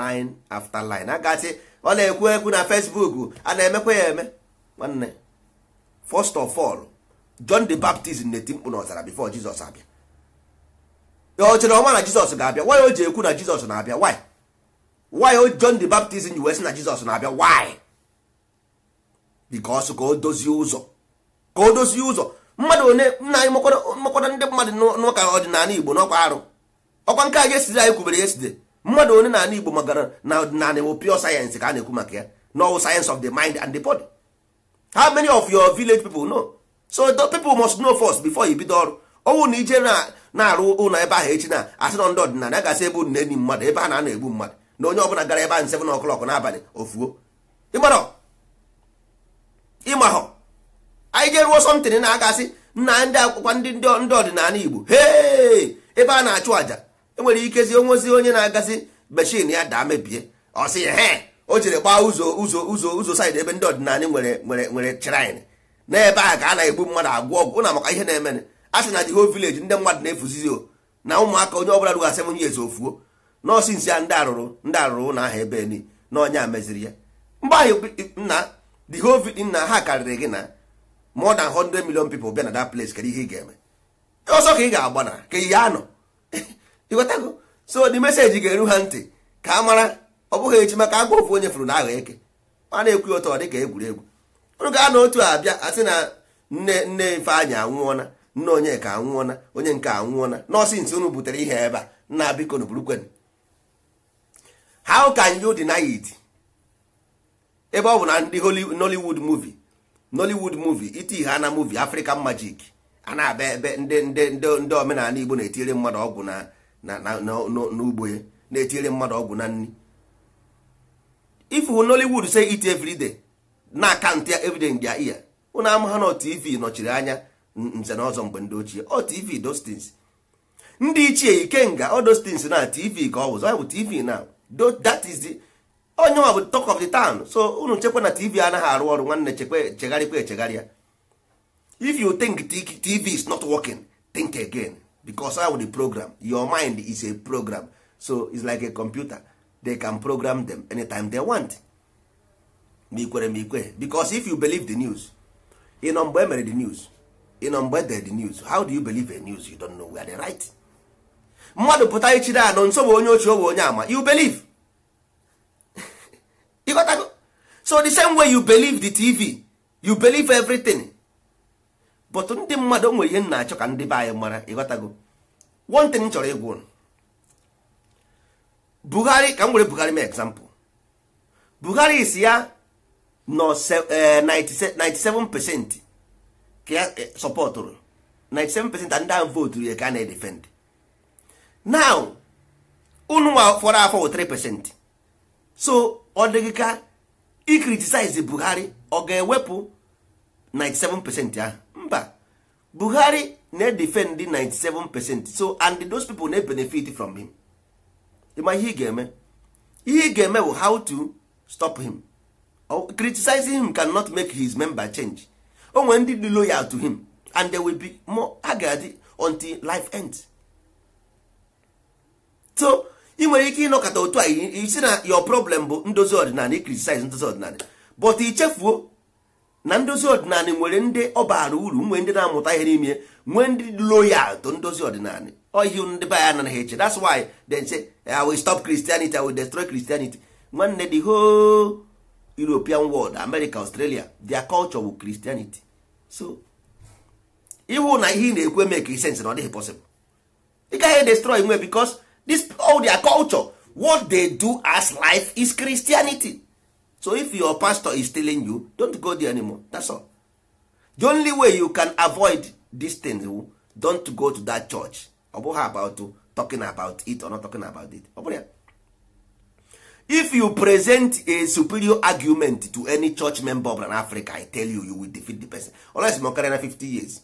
line after line agasị ọ na-ekwu ekwu na Facebook a na-emekwa ya eme nwanne first of all John the Baptist na-eti mkpu n'ọzara before Jizọs abịa ọ chere ọma na Jizọs ga-abịa why o ji ekwu na Jizọs na-abịa why why o John the Baptist yi wee na Jizọs na-abịa why bikos ka o dozie ụzọ ka o dozie ụzọ mmadụ one nna anyị mmakwada ndị mmadụ n'ụka ọdịnala igbo n'ọkwa arụ ọkwa nke a yeside anyị kwubere yeside mmadụ one n'ala igbo magara na ọdịnala wụ pure sayensị ka a na-ekwu maka ya no sayensị of the mind and the body how many of your village people know so the people must know first before you bido ọrụ ọnwụ na ije na-arụ ụlọ ebe ahụ echi na asị na ndị ọdịnala gasị ebe ụnụ na-enyi mmadụ ebe a na-ana egbu mmadụ na onye ọbụla gara ebe ahụ 7 o'clock n'abalị ofuo ịgbara ịmahọ anyị ga-eruo somtin na agasị nna ndị akwụkwọ ndị ọdịnala igbo hee ebe a na-achụ àjà enwere ikezi onwezi onye na-agazi mechin ya daa mebie ọ sị ya he o jiri gbaa ụzọ ụzọ ụzọ ụzọ saịdị ebe ndị ọdịnala nwere nwere nwere shrine n'ebe a ka a na-egbu mmadụ agwọ ọgwụ na maka ihe na-emene a sị na jiho vileji ndị mmadụ na-efuzizi o na ụmụaka onye ọbụla rugasị onye ezi ofuo nọọsụ nsị ya ndị arụrụ ndị arụrụ na aha ebe na onye a meziri ya mgbe ahụ nna the whole thing na ha karịrị gị na more than 100 million people bịa na that place kedu ihe ị ga-eme ọsọ ka ị ga-agba na ka ihe anọ ịghọtago so the message ga-eru ha ntị ka a mara ọ bụghị echi maka agwa ofu onye furu na agha eke a na-ekwu ya ọ dị ka egwuregwu ụrụ gaa na otu abịa asị na nne nne Ifeanyị anwụọna nne onye ka anwụọna onye nke anwụọna nọọsụ nsị unu butere ihe ebe a nna biko na burukwen how can you deny it? ebe ọ bụ na ndị nollywood movie nollywood movie iti ihe ana movie african magic a na-abịa ebe ndị ndị ndị omenala igbo na-etinyere mmadụ ọgwụ na n'ugbo ya na-etinyere mmadụ ọgwụ na nri ifu nollywood say it e every day na akant ya everyday ya iya ụna ha na tv nọchiri anya nze na ọzọ mgbe ndị ochie ọ tv dostins ndị ichie ikenga ọ dostins na tv ka ọ wụzọ bụ tv na onye ọ bụ talk of the town so unu chekwa na tv anaghị arụ ọrụ nwanne chekwa chegharịkwa echegharịa if you think tv is not working think again because how the program your mind is a program so it's like a computer they can program them anytime they want ma ikwere ma ikwe because if you believe the news ịnọ mgbe emere the news ịnọ mgbe dere the news how do you believe a news you don't know where they right mmadụ pụta ichiri anọ nso bụ onye ochie owe onye ama you believe ịghọtago so the same way you believe the tv you believe everything but ndị mmadụ nwere ihe na-achọ ka ndị be anyị mara ịghọtago one thing chọrọ ịgwa ụnụ Buhari ka m were Buhari mee example Buhari is ya nọ 97 eh, percent ka ya eh, sọpọtụrụ 97 percent ndị ahụ votu ya ka a na-edefend now unu nwa fọrọ afọ 3 percent so ọ dịghị ka i Buhari ọ ga-ewepụ 97 percent ahụ mba Buhari na-edefend 97 so and those people na-benefit from him ịma ihe ị ga-eme ihe ị ga-eme bụ how to stop him criticizing him cannot make his member change o nwere ndị dị loyal to him and there will be more ha ga until life ends so ị nwere ike ịnọkọta otu a isi na your problem bụ ndozi ọdịnala criticize ndozi ọdịnala but ichefuo na ndozi ọdịnala nwere ndị ọ bara uru nwee ndị na-amụta ihe n'ime nwee ndị loyal to ndozi ọdịnala ohi ndị be ya anaghị eche that's why they say I will stop Christianity I will destroy Christianity nwanne the whole European world America Australia their culture bụ Christianity so ịhụ na ihe ị na-ekwu eme ka sense na ọ dịghị possible ị gaghị e destroy nwe bikos this all their culture what they do as life is christianity so if your pastor is telling you don't go there anymore that's all the only way you can avoid this thing oh, don't go to that church ọ bụghị about talking about it or not talking about it ọ bụrụ ya if you present a superior argument to any church member of an africa i tell you you will defeat the person unless ma karịa na 50 years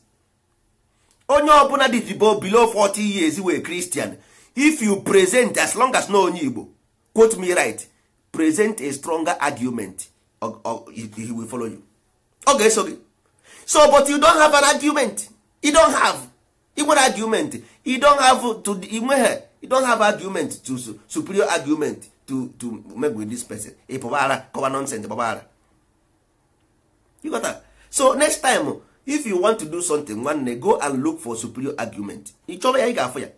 onye ọbụla dị dibo below 40 years were christian if you present as long as no onye igbo quote me right present a stronger argument or, or he will follow you ọ ga so but you don't have an argument you don't have ị argument you don't have to inwehe you don't have argument to superior argument to to make with this person ị pụbara kọwa nonsense gbabara you got that? so next time if you want to do something nwanne go and look for superior argument ị chọrọ ya ị ga-afụ ya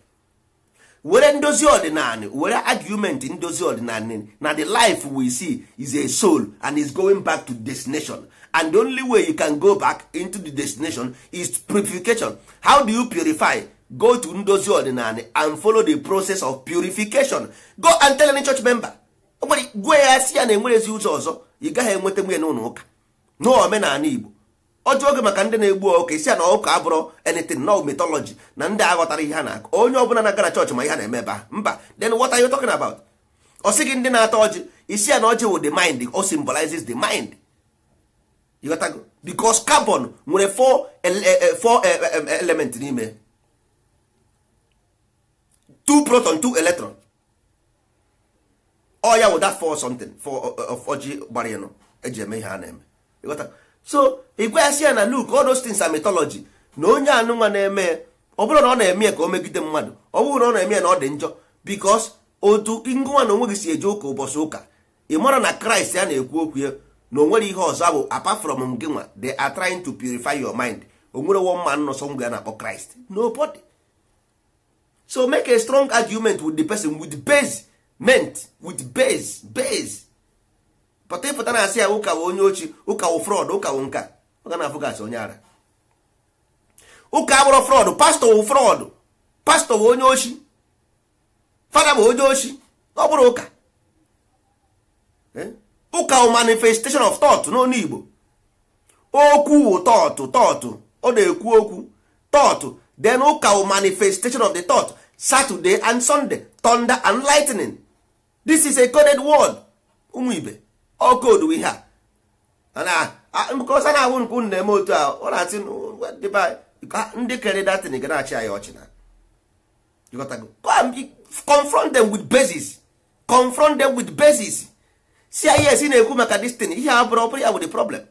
were ndozi ọdịnala were argument ndozi ọdịnala na the life we see is a soul and is going back to destination and the only way you can go back into the destination is purification how do you purify go to ndozi ọdịnala and follow the process of purification go and tell any church member gwe ya si ya na enwerezi ụzọ ọzọ ị gaghị enweta nwunye ụlọ ụka omenala Igbo ọjọọ oge maka ndị na-egbu ọka isi a na ụka abụrụ anything no mythology na ndị aghọtara ihe ha na-akụ onye ọbụla na-aga chọọchị ma ihe na-eme ebe a mba then what are you talking about ọ sị gị ndị na atọ ọjị isi a na ọjị wụ the mind o symbolizes the mind ịghọtago because carbon nwere four e, e, e, element n'ime two proton two electron ọ ya wụ that for something for of ọjị gbara ịnụ eji eme ihe a na-eme so ịgwaghasị ya na Luke all those things na onye anụnwa na-eme ọ bụrụ na ọ na-eme ka o megide mmadụ ọ bụrụ na ọ na-eme na ọ dị njọ because otu ngụnwa na onweghị si eje ụka ụbọchị ụka ị mara na Kraịst ya na-ekwu okwu ya na onwere nwere ihe ọzọ bụ apa from gị nwa they are trying to purify your mind o nwere one man nọsọ ngwa ya na-akpọ Kraịst nobody so make a strong argument with the person with base ment with base base pụta ịpụta na-asị ya ụka onye ochi ụka wụ frọd ụka nka ọ ga na-afụ gasị onye ara ụka abụrụ frọd pastọ wụ frọd pastọ wụ onye ochi fada bụ onye ochi ọ bụrụ ụka ụka wụ manifestation of thought n'onu Igbo okwu wụ tọtụ tọtụ ọ na-ekwu okwu tọtụ den ụka wụ manifestation of the thought Saturday and Sunday thunder and lightning this is a coded word ụmụ ibe ọ koodu ihe a because a na-awụ nke unu na-eme otu a ọ na-asị ndị kere datin ga na-achị anyị ọchị na confront them with basis confront them with basis si anyị esi na-ekwu maka this thing ihe a bụrụ ọbụrụ ya bụ the problem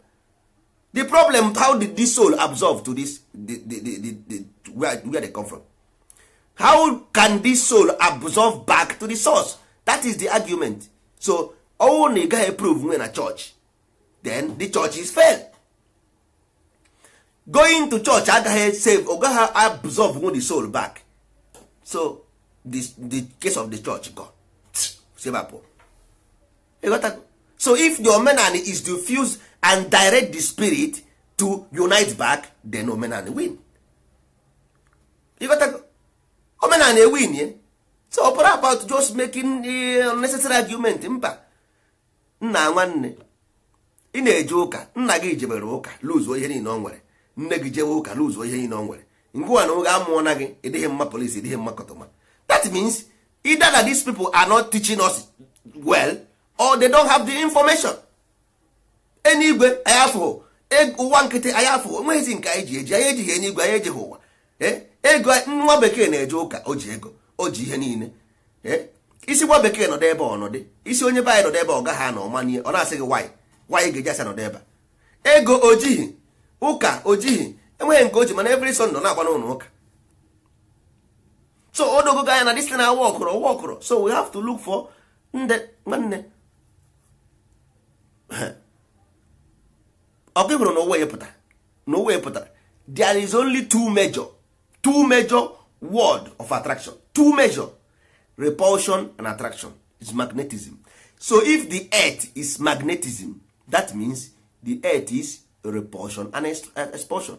the problem how did this soul absorb to this the, the, the, the, the, where, where they come from how can this soul absorb back to the source that is the argument so ọnwụ na ị gaghị eprove nwe na church. then the church is fail going to church agaghị save ọ gaghị absorb nwe the soul back so the, the case of the church go sebapụ so if the omenani is to and direct the spirit to unite back then omenani win omenani ewin so ọ about just making unnecessary argument mba nna nwanne ị na-eje ụka nna gị jebere ụka luzuo ihe niile ọ nwere nne gị jewe ụka luzuo ihe niile ọ nwere ngwa na oge amụọ na gị ịdịghị mma polisi ịdịghị mma kọtọma that means either that these people are not teaching us well or they don't have the information enigwe ayafụ ụwa nkịtị ayafụ onweghịzi nke anyị ji eji anyị ejighị enye igwe anyị ejighị ụwa ego nwa bekee na-eje ụka o ji ego o ji ihe niile isi nwa bekee nọdụ ebe ọnọdụ isi onye be anyị nọdụ ebe ọ gaghị anọ manie ọ na-asị gị nwaanyị nwaanyị ga-eji asa nọdụ ebe ego ojighị ụka ojighị enweghị nke oji mana every Sunday nọ na-agba n'ụlọ ụka so o dogogo anya na dis na awa ọkụrụ ọwa ọkụrụ so we have to look for nde nwanne ọkụ hụrụ na ụwa epụtara na ụwa epụtara there is only two major two major word of attraction two major repulsion and attraction is magnetism so if the earth is magnetism that means the earth is repulsion and expulsion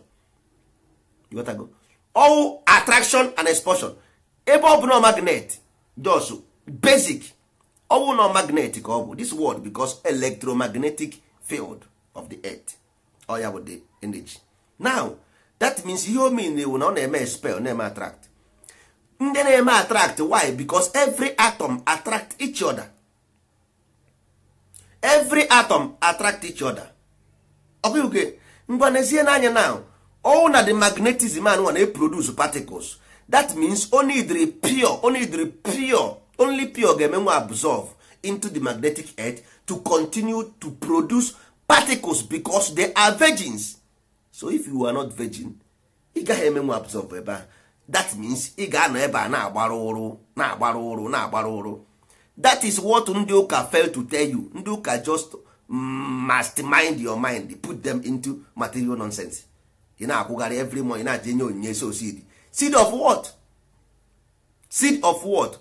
you got go all attraction and expulsion ebe ọ bụ na magnet just basic ọ bụ na magnet ka ọ bụ this word because electromagnetic field of the earth oya ya bụ the energy now that means ihe o mean na ọ na-eme spell na-eme attract ndị na-eme attract why because every atom attract each other every atom attract each other ọkụke ngwa n'anya now all na the magnetism anụ na produce particles that means only the pure only the pure only pure ga-eme nwa absorb into the magnetic earth to continue to produce particles because they are virgins so if you are not virgin ị gaghị eme nwa absorb ebe ahụ that means ị ga-anọ ebe a na-agbara ụrụ na-agbara ụrụ na-agbara ụrụ that is what ndị ụka fail to tell you ndị ụka just mind your mind put them into material nonsense ị na-akwụgharị every month na-aje enye onyinye so seed seed of what seed of what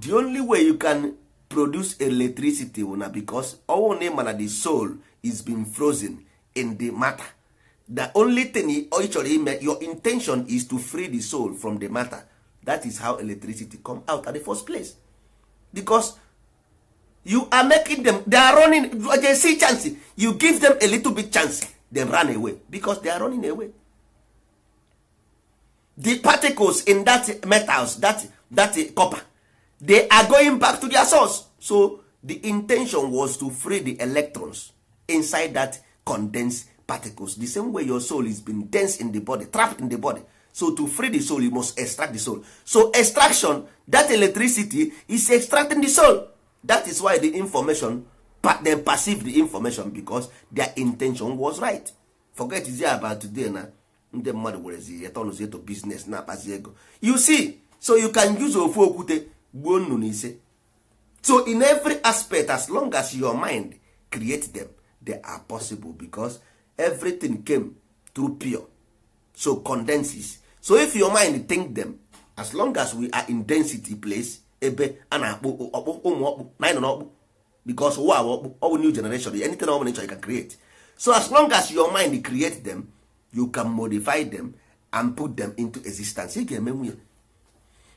the only way you can produce electricity na because ọnwụ na ịma na the soul is being frozen in the matter the only thing ọ chọrọ ime your intention is to free the soul from the matter that is how electricity come out at the first place because you are making them they are running they see chance you give them a little bit chance they run away because they are running away the particles in that metals that that copper they are going back to their source so the intention was to free the electrons inside that condensed particles the same way your soul is been dense in the body trapped in the body so to free the soul you must extract the soul so extraction that electricity is extracting the soul that is why the information them perceive the information because their intention was right forget is about today na ndị mmadụ werezi to business na-akpazi ego you see so you can use ofu okwute gbuo nnụnụ ise so in every aspect as long as your mind create them they are possible because everything came through pure so condenses so if your mind think them as long as we are in density place ebe a na-akpụ ọkpụ ụmụ ọkpụ na anyị nọ n'ọkpụ because ụwa ọkpụ ọ bụ new generation anything of bụla nature chọrọ can create so as long as your mind create them you can modify them and put them into existence ị ga-emenwu ya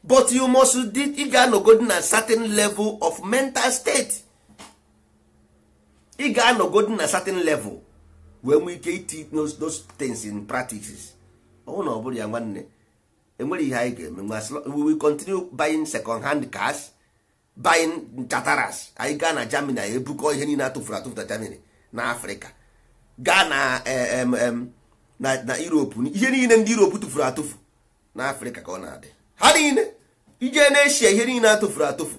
but you must ị ga-anọgodi na certain level of mental state ị ga-anọgodi na certain level wee nwee ike iti those things in practices ọnwụ na ọ bụrụ ya nwanne enwere ihe anyị ga-eme we will continue buying second hand cars buying chataras anyị gaa na Germany anyị ebukọ ihe niile atụfuru atụfu na Germany na africa gaa na eh, na Europe ihe niile ndị Europe tụfuru atụfu na africa ka ọ na-adị ha niile ije na Eshia ihe niile atụfuru atụfu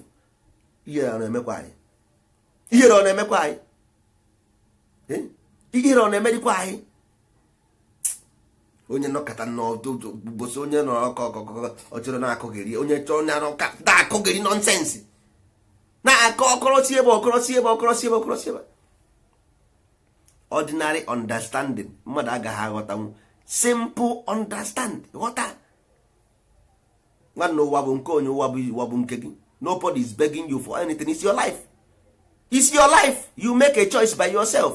ihere ọ na-emekwa anyị eh? ihere ọ na-emerikwa anyị onye nọkọta n'ọdụbosi onye nọkọ ọkọkọ ọ chọrọ na-akụghịrị onye chọrọ na-akụghịrị nọnsensị na-akọ ọkọrọsi ebe ọkọrọsi ebe ọkọrọsi ebe ọkọrọsi ebe ordinary understanding mmadụ agaghị aghọtanwu simple understand ghọta nwanne ụwa bụ nke onye ụwa bụ ụwa nke gị nobody is begging you for anything it's your life it's your life you make a choice by yourself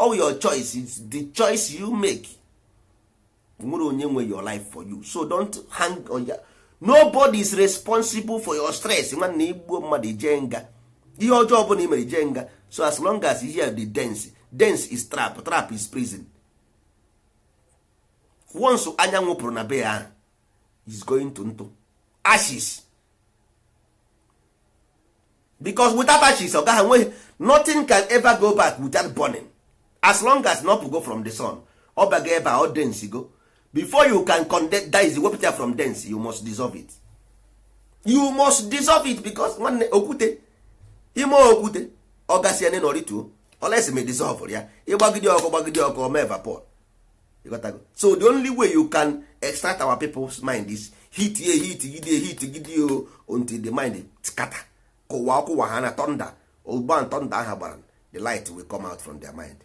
all your choice is the choice you make nwere onye nwe your life for you so don't hang on ya nobody is responsible for your stress nwanne igbuo mmadụ ije nga ihe ọjọọ ọbụla imere ije nga so as long as you hear the dance dance is trap trap is prison once anyanwụ pụrụ na be ya is going to ntụ ashes because without ashes ọ gaghị nwe nothing can ever go back without burning as long as na go from the sun ọ baga ebe a ọ dense go before you can condense wepụta ya from dense you must dissolve it you must dissolve it because nwanne okwute ime okwute ọ gasị ene n'orituo olesi me dissolve ya ịgbagide ọkụ gbagide ọkụ ọma evapor so the only way you can extract our people's mind is hit ye hit gide hit gide o until the mind scatter kụwa ọkụwa ha na thunder ụgban thunder aha gbara the light will come out from their mind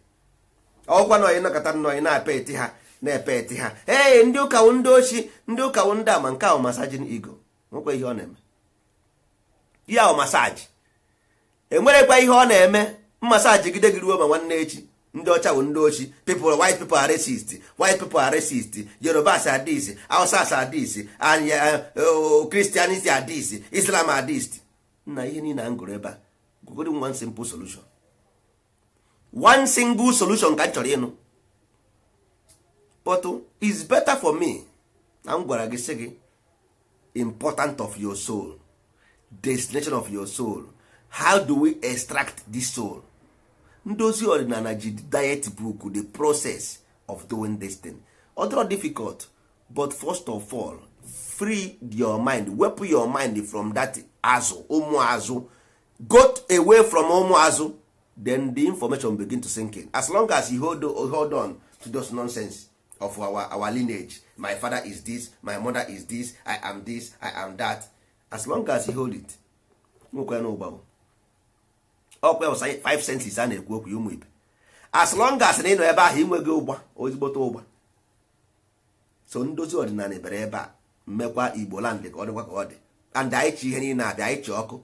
ọgwa na anyị nakọta nnọọ anyị na-epe eti ha na-epe eti ha ee ndị ụkawụ ndị ochi ndị ụkawụ ndị ama nke ahụ masajin igo nwekwa ihe ọ na-eme ya ahụ masaji enwerekwa ihe ọ na-eme masaji gide gị ruo ma nwanne echi ndị ọcha bụ ndị ochi people white people are racist white people are racist yorubas are this hausas are eh, this oh, christianity are islam are this nna ihe niile a ngụrụ gụrụ ebe a gwogoro nwa simple solution one single solution ka m chọrọ ịnụ but is better for me na m gwara gị sị gị important of your soul destination of your soul how do we extract this soul ndozi ọdịnala ji diet book the process of doing this thing other difficult but first of all free your mind wepụ your mind from that azụ ụmụ azụ got away from ụmụ azụ then the information begin to sink in as long as you hold, hold on to those nonsense of our, our lineage my father is this my mother is this i am this i am that as long as you hold it nwekwe na ụgbanwe ọkwa 5 senses a na-ekwu okwu ụmụ ibe as long as na ị nọ ebe ahụ inweghị ụgba ozigbota ụgba so ndozi ọdịnala bere ebe a mmekwa igbo land ka ọ dịkwa ka ọ dị and anyị chi ihe niile abịa anyị chi ọkụ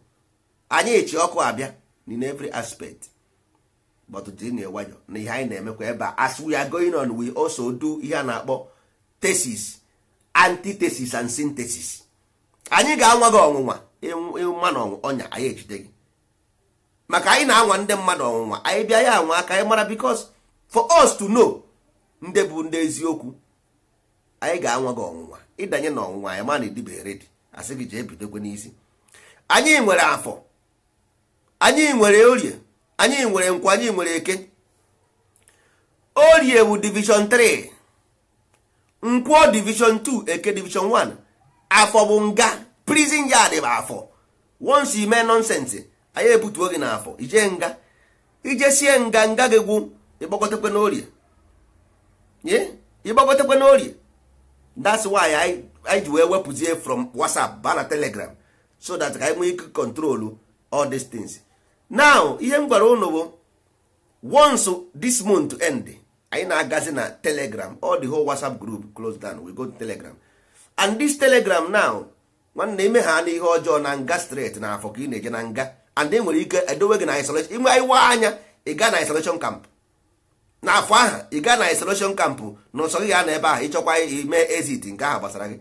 anyị chi ọkụ abịa in every aspect but dịnụ nwayọ na ihe anyị na-emekwa ebe a as we are going on we also do ihe a na-akpọ thesis antithesis and synthesis anyị ga-anwa gị ọnwụnwa ịma na ọnya anyị ejide gị maka anyị na-anwa ndị mmadụ ọnwụnwa anyị bịa ya anwa aka anyị mara because for us to know ndị bụ ndị eziokwu anyị ga-anwa gị ọnwụnwa ịdanye na ọnwụnwa anyị ma na edibe redi asị gị jee bidokwe n'isi anyị nwere afọ anyị nwere orie anyị nwere nkwa anyị nwere eke orie wu division 3 nkwọ division 2 eke division 1 afọ bụ nga prison yard bụ afọ once ime nonsense anyị ebutuo gị n'afọ ije nga ijesie nga nga gị gwụ ịgbakọtakwe n'orie ịgbakọtakwe n'orie that's why anyị ji wee wepụzie from whatsapp ba na telegram so that ka anyị nwee ike kontrolu all these things now ihe m gwara ụnụ bụ once this month end anyị na-agazi na telegram all the whole whatsapp group close down we go to telegram and this telegram now nwanne ime ha n'ihe ọjọọ na nga straight na afọ ka ị na-eje na nga and enwere ike edowe gị na isolation inwe iwa anya ị gaa na isolation camp n'afọ aha ị gaa na isolation camp na ụsọ gị gaa na ebe ahụ ịchọkwa ime exit nke ahụ gbasara gị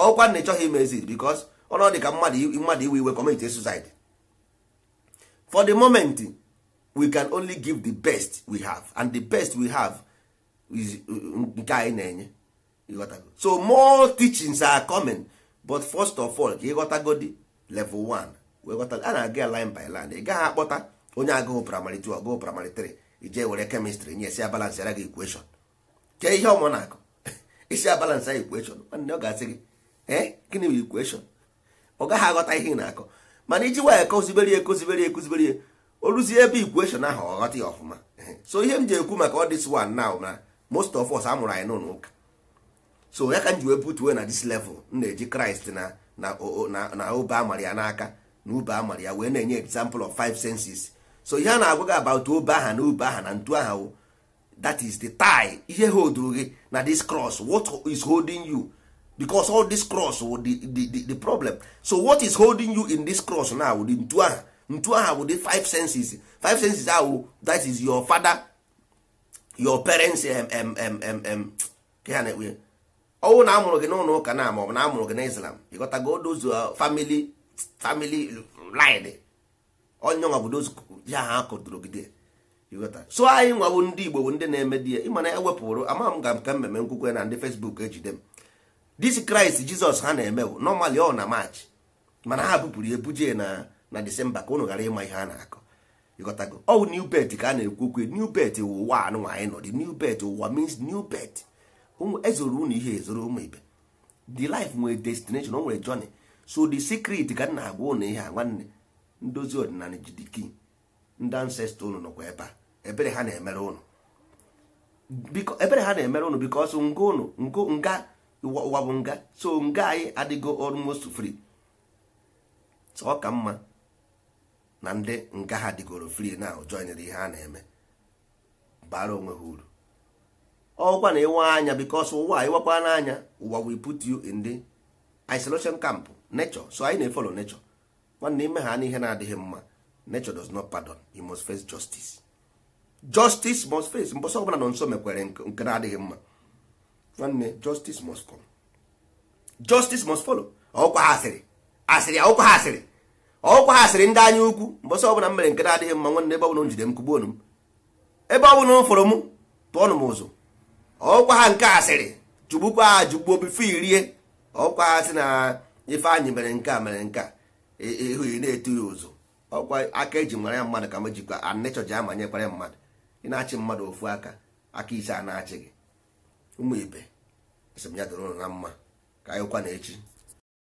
ọkwa na ịchọghị ime exit because ọnọdụ dị ka mmadụ iwe iwe commit suicide for the moment we can only give the best we have and the best we have uh, nke anyị na-enye so more teachings are coming but first of all ka level 1 a na-aga line by gaghị akpọta onye agụụ primary agụụ primary ije were nye abalance ara gị ihe ọmụ na isi abalance ihe na-akọ mana iji waya ekozibere ya ekozibere ya ya o ruzie ebe ikweshọn ahụ ọ ya ọfụma so ihe m ji ekwu maka ọdịs wan na na most of us amụrụ anyị n'ụlọ ụka so ya ka m ji wee butuwe na dis level m na-eji kraịst na na obe amara ya n'aka na ube amara ya wee na-enye example of five senses so ihe a na-agwa gị about obe aha na ube aha na ntu aha that is the tie ihe holduru gị na this cross what is holding you because all this cross wụ oh, the, the, the, the problem so what is holding you in this cross now wụ the ntu aha ntu aha wụ the five senses five senses ahụ oh, that is your father your parents mm eh, ọnwụ na amụrụ gị n'ụlọ ụka na ma ọ bụ na amụrụ gị na islam ịghọtago those uh, family family line onye nwa bụ those ya ha kọtụrụ gị dị so anyị nwa bụ ndị igbo bụ ndị na-eme di ya ịma na ewepụrụ ama m ga ka mmemme nkwukwe na ndị facebook ejide m this kraịst jizọs ha na-eme nọmalị ọ na maachị mana ha bupụrụ ebuje na na disemba ka ụnụ ghara ịma ihe a na-akọ ịghọtago ọ new bet ka a na-ekwu new bet ụwa anụnwa anyị nọ dị new bet ụwa means new bet ezoro ụnụ ihe ezoro ụmụ ibe the life nwere destination o nwere jony so the secret ka na-agwa ụnụ ihe a nwanne ndozi ọdịnala jidiki ndị ancestor ụnụ nọkwa ebe a ebere ha na-emere ụnụ bikos nga ụnụ nga ụwa bụ nga so nga anyị adịgo almost free so ọ ka mma na ndị nga ha dịgoro free na joinere ihe a na-eme bara onwe ha uru ọkwa na ịwa anya bikos ụwa ịwakwa n'anya ụwa we put you in the isolation camp nature so anyị na-efolo nature nwanne ime ha n'ihe na-adịghị mma nature does not pardon you must face justice justice must face mbọsọ ọbụla nọ nso mekwere nke adịghị mma nwanne justice must come justice must follow ọkwa ha asịrị asịrị ọkwa ha asịrị ọkwa ha asịrị ndị anya ukwu mbọsị ọbụla m mere nke na-adịghị mma nwanne ebe ọbụla m jide m kugbuonu m ebe ọbụla m fụrụ m tụọnụ m ụzụ ọkwa ha nke asịrị jugbukwa ha jugbuo bifo irie ọkwa ha sị na ifeanyị mere nke a mere nke a ihu e, ị e, e, na-etu ya ụzụ ọkwa aka eji mara ya mmadụ ka m jikwa anịchọji amanyekwara mmadụ ị na-achị mmadụ ofu aka aka ise a na-achị gị ụmụ ibe sị m ya doro na mma ka anyịkwa na echi